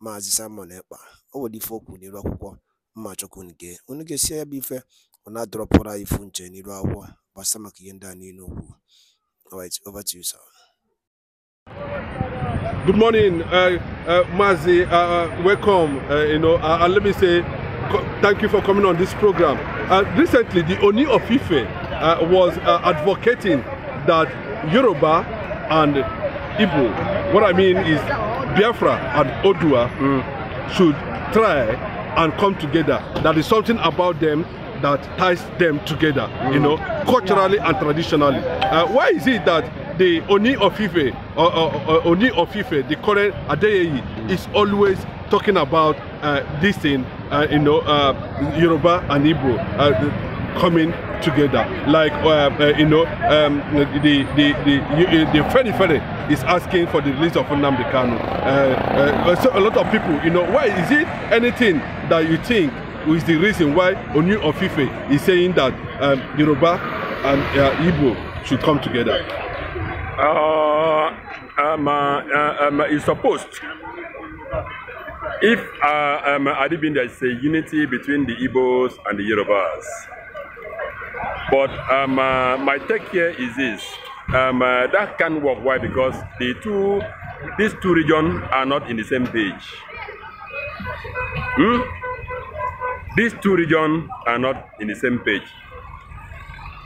Maazị Simon Ekpa o nwere ife o kwuru n'iru akwụkwọ mma chukwu nke unu ga-esi ya bụ ife ọ na-adọrọpụrụ anyị ifu nche n'iru akwụkwọ gbasa maka ihe ndị a niile okwu over to you sir Good morning, uh, uh, Mazi. Uh, uh, welcome. Uh, you know, and uh, let me say thank you for coming on this program. recently, the Oni of Ife was advocating that Yoruba and Igbo. What I mean is Biafra and Odua mm. should try and come together. That is something about them that ties them together, mm. you hmm. know, culturally and traditionally. Uh, why is it that the Oni of Ife, or, uh, uh, uh, Oni of the current Adeyeyi, is always talking about uh, this thing, uh, you know, uh, Yoruba and Igbo uh, coming together. Like uh, uh, you know, um, the the the the Fede is asking for the release of Nnamdi Kanu. Uh, uh, so a lot of people, you know, why is it anything that you think is the reason why Onu Ofife is saying that um, Yoruba and uh, Igbo should come together? Uh, um, um, it's supposed. If uh, um, Adibinda is a unity between the Igbos and the Yorubas, But um, uh, my take here is this. Um, uh, that can't work. Why? Because the two, these two regions are not in the same page. Hmm? These two regions are not in the same page.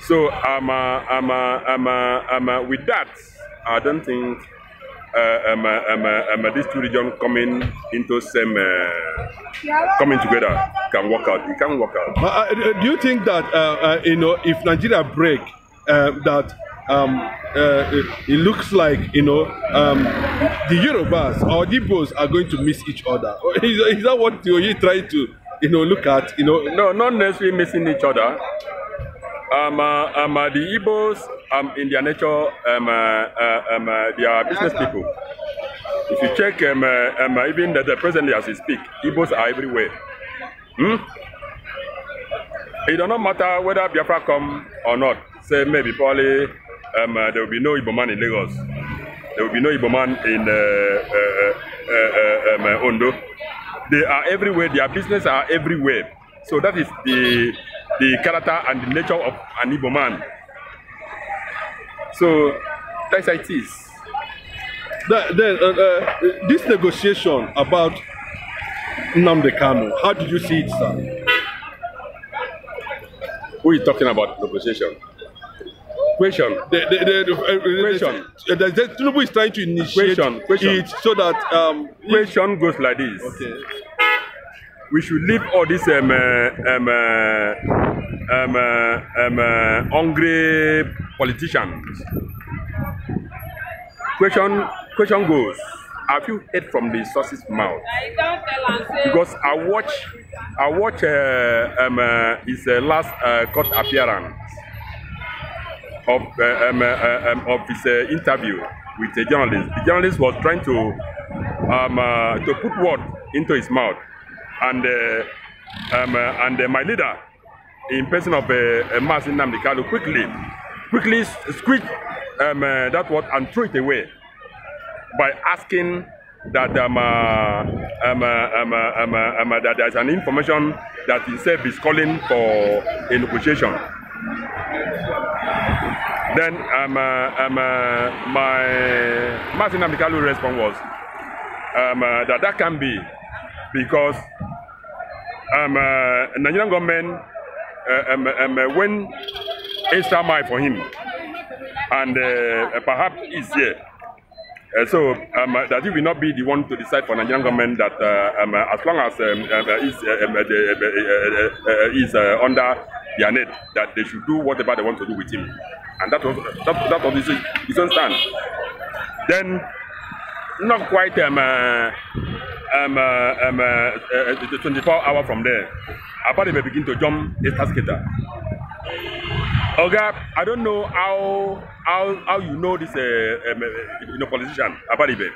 So um, uh, um, uh, um, uh, um, uh, with that, I don't think Uh, um, uh, um, uh, um, these two regions coming into same uh, coming together can work out. It can work out. Uh, do you think that uh, you know if Nigeria break that? Um, it, it, looks like you know um, the Yorubas or the Igbos are going to miss each other. Is, is that what you're trying to you know look at? You know, no, not necessarily missing each other. Um, uh, um, uh, the Igbos, um, in their nature, um, uh, um, uh, they are business people. If you check, um, uh, um, uh, even the, the presently as we speak, Igbos are everywhere. Hmm? It does not matter whether Biafra come or not. Say maybe probably um, uh, there will be no Igbo man in Lagos. There will be no Igbo man in uh, uh, uh, uh, um, uh, Ondo. They are everywhere. Their business are everywhere. So that is the the character and the nature of an Igbo man. So that's how it is. then, uh, uh, this negotiation about Namde Kanu, how did you see it, sir? Who is talking about negotiation? Question. The, the, uh, uh, the, question. The, the, the, Tinubu is trying to initiate question, question. it so that... Um, question goes like this. Okay. We should leave all this um, uh, um, um, um, hungry politicians. Question, question goes, have you heard from the sources' mouth? Because I watch, I watch uh, um, uh, his uh, last uh, court appearance of uh, um, uh, uh um, of his uh, interview with the journalist. The journalist was trying to um, uh, to put word into his mouth, and uh, um, uh, and uh, my leader in person of a uh, Marcin Namdekalo quickly, quickly squeeze um, uh, that word and throw it away by asking that um, uh, um, uh, um, uh, um, uh, um, that there is an information that itself is calling for a negotiation. Then um, uh, um, uh, my Martin Amikalu response was um, uh, that that can be because um, uh, Nigerian government Uh, um, um, uh, went extra mile for him, and uh, uh, perhaps he's here. Uh, so um, that he will not be the one to decide for Nigerian government that uh, um, as long as um, is, is under their net, that they should do whatever they want to do with him, and that was that, that was his, his own stand. Then, not quite um, uh, um, uh, um, uh, uh, 24 hours from there. Apart they begin to jump a skater. Okay. I don't know how how how you know this uh, um, uh, you know, politician Abadibe.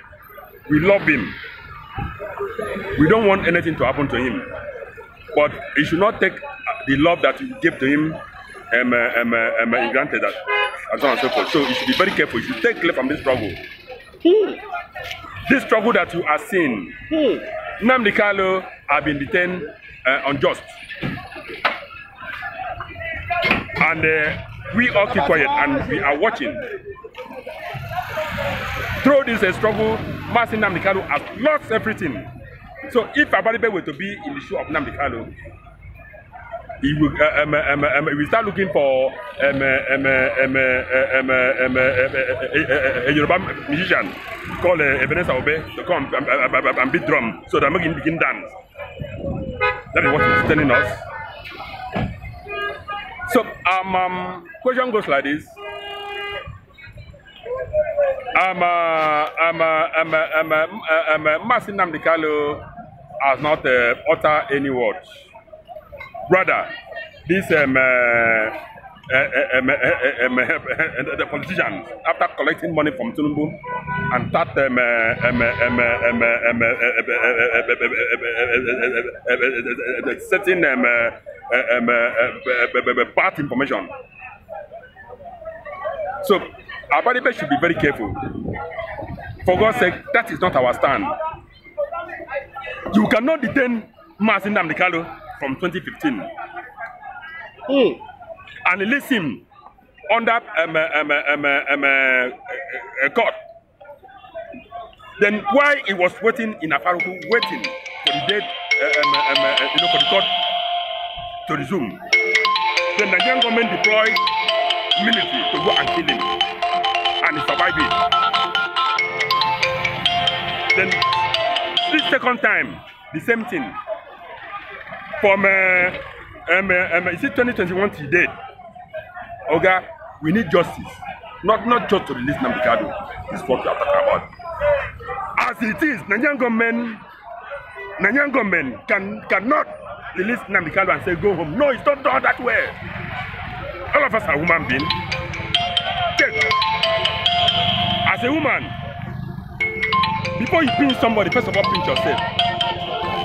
We love him. We don't want anything to happen to him. But he should not take the love that you give to him um, uh, um, uh, um, uh, granted that, and so on and so forth. So you should be very careful. You should take love from this struggle. Hmm this struggle that you are seeing. Hmm. Nnamdi Kanu have been detained uh, unjust. And uh, we all keep quiet and we are watching. Through this uh, struggle, Martin Nnamdi Kanu has lost everything. So if Abaribe were to be in the shoe of Nnamdi Kanu, He will, um, um, um, we start looking for um, um, um, um, um, um, a, a, a Yoruba musician called uh, Ebenezer Obe to come and, and, and beat drum so that making begin dance. That is what he's telling us. So, um, um, question goes like this. Um, uh, um, uh, um, uh, um, uh, um, uh, Masin um, has um, uh, um, any um rather this um, uh, uh, um, uh, um, uh, the politicians after collecting money from Tinubu and that um, uh, um, um, um, um, uh, um, certain um, uh, um, uh, bad information. So our Abadibe should be very careful. For God's sake, that is not our stand. You cannot detain Mazin Namdekalo from 2015. Mm. And he leads him under um, um, um, um, uh, God. Um, uh, um, uh, then why he was waiting in a Afaruku, waiting for the date, um, um, uh, you know, for the court to resume, then the Nigerian government deployed military to go and kill him, and he survived it. Then this second time, the same thing from uh, um, uh, um, is it 2021 till date oga okay? we need justice not not just to release Namikado. This is what we are talking about as it is Nigerian government Nigerian government can cannot release Namikado and say go home no it's not done that way all of us are human beings yes. as a woman before you pinch somebody first of all pinch yourself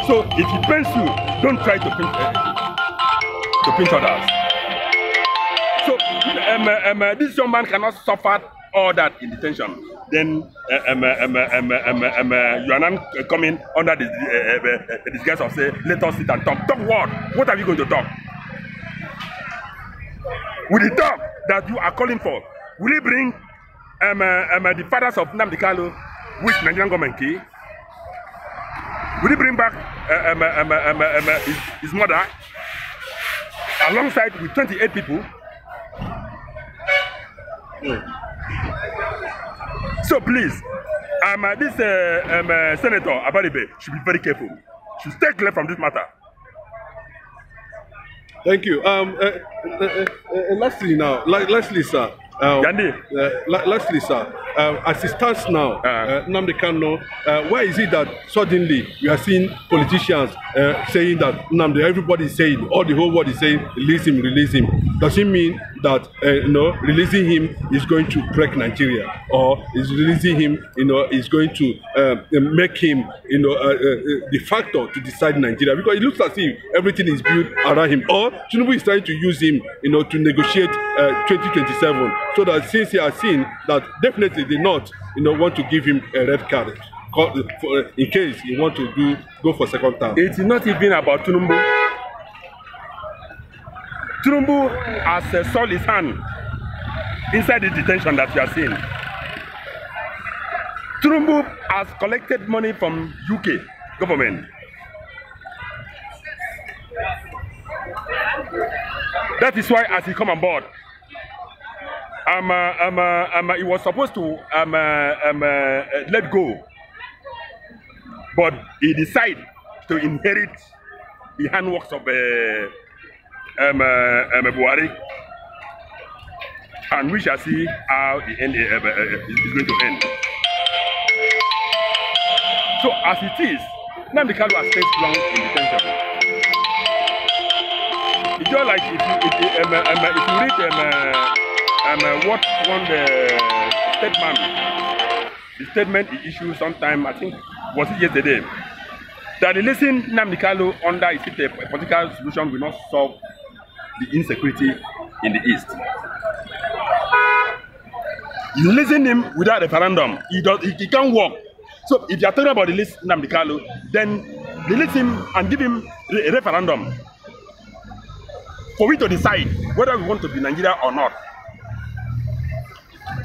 so if he pains you Don't try to pinch, eh, uh, to pinch others. So um, uh, um, uh, this young man cannot suffer all that in detention. Then uh, um, uh, um, um, um, um, uh, you are not coming under the uh, uh, disguise of say, let us sit and talk. Talk what? What are you going to talk? With the talk that you are calling for, will you bring um, uh, um, uh, the fathers of Namdi Kalu, with Nigerian government key? Will you bring back um, um, um, um, his, his mother, alongside with 28 people. Mm. So please, um, uh, this uh, um, uh, Senator Abaribe should be very careful. Should stay clear from this matter. Thank you. Um, uh, uh, uh, uh, Leslie now, Le Leslie sir. Um, Gandhi. Uh, lastly, sir, uh, as it stands now, ah. uh, Namde Kano, uh, why is it that suddenly we are seeing politicians uh, saying that Namde, everybody is saying, all the whole world is saying, release him, release him? Does it mean that uh, you know releasing him is going to break Nigeria or is releasing him you know is going to uh, make him you know uh, uh, uh, the factor to decide Nigeria because it looks as if everything is built around him or Tinubu is trying to use him you know to negotiate uh, 2027 so that since he has seen that definitely the not you know want to give him a red card in case he want to do go for second term. It is not even about Tinubu. Trumbu has uh, sold his hand inside the detention that you are seeing. Trumbu has collected money from UK government. That is why as he come on board, um, uh, um, uh, um, uh, he was supposed to um, uh, um, uh, let go. But he decided to inherit the handworks of uh, um, um, Buhari, and we shall see how the end uh, uh, is going to end. So as it is, Nnamdi Kanu has spent long in detention. It's just like if you, if, um, um, if you read um, uh, what one the statement, the statement he issued sometime, I think, was it yesterday, that the releasing Nnamdi Kanu under a political solution will not solve the insecurity in the East. You listen him without a referendum. He, does, he, he can't work. So if you're talking about the list Namdekalo, then release him and give him a referendum for we to decide whether we want to be Nigeria or not.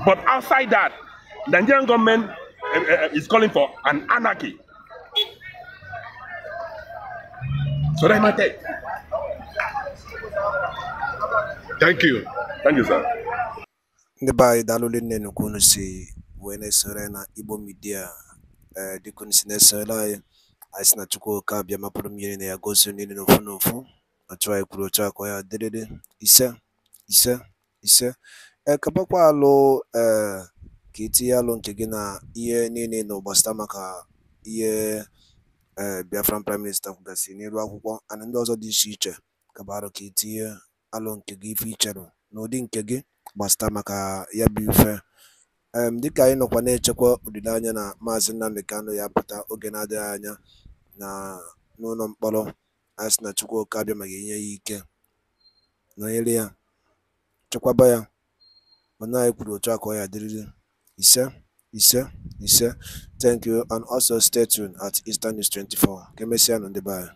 But outside that, Nigerian government uh, uh, is calling for an anarchy. So that's my take. thank you thank you sir ndị be anyị daalụli nne nnukwu unu si wee na-esore na igbo midia ee eh, dịka unu si na-esorela anyị anyị si na chukwu oke abịa mapụrụ mmiri na ya gosi niile n'ofu n'ofu na chụ anyị kwuru otu akọ ya dịrịrị ise ise ise ekebakwa eh, alụ ee eh, ka itinye alụ nke gị na ihe niile na ụgbasịta maka ihe ee biafran prime minista kwugasịrị n'iru akwụkwọ ana ndị ọzọ dị iche iche kabarụ ka itinye alụ nke gị ife ị n'ụdị nke gị gbàsị̀tà maka ya bụ̇ ife um dịkà anyị nọkwa na-echekwa òlìleanya na Maazị Nnamdi Kanụ ya pụta oge na-adịghị anya na mkpọrọ a sị na Chukwuka abịa mà ga-enye ya ike nọnyere ya chekwaba ya mana anyị kwuru otu a ka ọ ya dịrịrị ise ise ise thank you and also stay tuned at Eastern News 24 ka emesịa nụ ndị be anyị